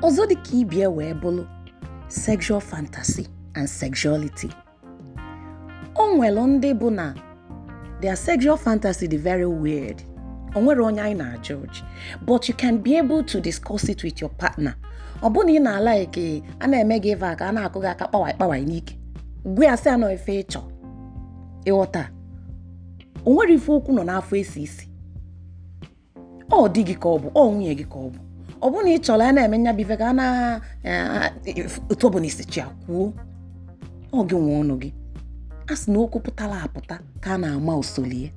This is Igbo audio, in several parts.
ọzọ dị ka ibie wee bụrụ sexual fantasy and sexuality o nwere ndị bụ na their sexual fantasy dị very weird o nwere onye anyị na ọchị. but you can be able to discuss it with your partner ọ bụ na ị na-ala eke a na-eme gị ịva aka a na-akụ gị aka kpawai kpawai n'ike gwe ya sị anọ efe ịchọ ịghọta o nwere ife okwu nọ n'afọ esi isi ọ dị gị ka ọ bụ ọ nwunye gị ka ọ bụ ọ bụrụ na ị chọrọ a na-eme nya ife ka a na e, otu ọbụla isi chi kwuo ọ gị nwe ọnụ gị a sị na okwu pụtara apụta ka a na-ama osolie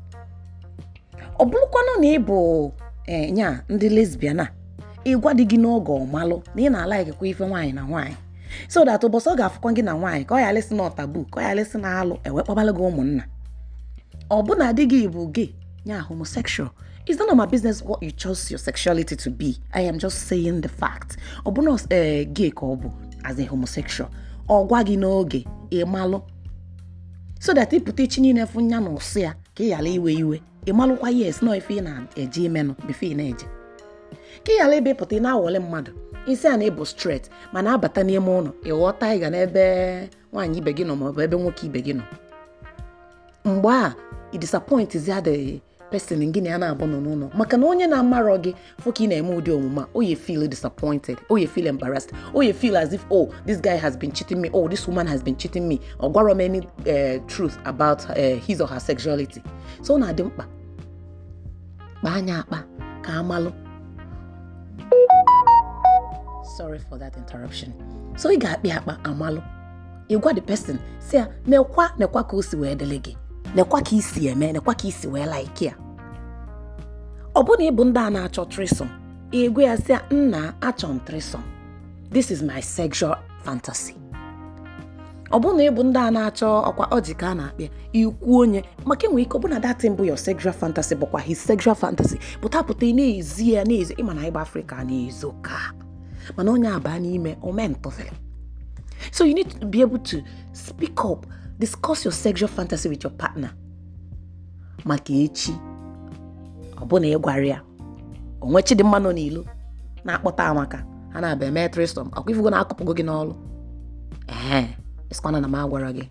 ọ bụrụkwanụ na ị bụ e, nya ndị lesbian a ịgwa dị gị n'oge ọmalụ na ị na-ala ikekwa ife nwaanyị na nwaanyị so that ụbọchị ọ ga-afụkwa gị na nwaanyị ka ọ yalịsị na ọtabu ka ọ yalịsị na alụ ewekpabalụ gị ụmụnna ọ bụna di gị bụ gị yeah, homosexual. It's none of my business what you chose your sexuality to be. I am just saying the fact. Obunos uh, eh, gay kobu as a homosexual. Or gwagi n'oge ịmalụ. So that ịpụta ichi niile fụ nya na ụsụ ya ka ị ghara iwe iwe. Ịmalụkwa yes nọ ife ị na-eje eh, imenụ bifo ị na-eje. Ka ị ghara ebe pụta ị na-awọle mmadụ. Isi a na-ebu straight mana abata n'ime ụlọ ịghọta ịga n'ebe nwaanyị ibe gị nọ maọbụ ebe nwoke ibe gị nọ. Mgbe a, ị disappoint ya the pesin gị na ya na-abụ nọ n'ụlọ maka na onye na-amarọ gị nwoke ị na-eme ụdị omume oye feel disappointed oye feel embarrassed oye feel as if oh this guy has been cheating me oh this woman has been cheating me ọ gwarọ m any eh, truth about uh, his or her sexuality so ọ na-adị mkpa kpaa anya akpa ka amalụ sorry for that interruption so ị ga-akpị akpa amalụ ịgwa the person si ya nekwa nekwa ka o si wee dịlị gị nekwa ka isi eme nekwa ka isi wee like ya ọbụna ịbụ ndị a na-achọ trisom igwe ya sị nna achọ m trisom this is my sexual fantasy ọbụna ịbụ ndị a na-achọ ọkwa ọjị ka a na-akpịa ikwu onye maka enwere ike ọbụna datin mbụ your sexual fantasy bụkwa his sexual fantasy pụtapụta na-ezi ya na-ezo ịma na ịgba afrịka na-ezo ka mana onye abaa n'ime omentụfere so you need to be able to speak up discuss your sexual fantasy with your partner maka echi ọ bụ na ịgwara ya onwe Chidimma nọ n'ilo na-akpọta amaka ha na-abịa mee tristom ọkwa ifugo na-akụpụgo gị n'ọlụ ee esikwana na m agwara gị